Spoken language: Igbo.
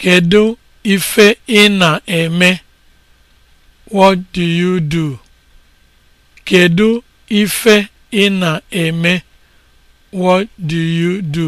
Kedu ife ị na-eme? What do you do? Kedu ife ị na-eme? What do you do?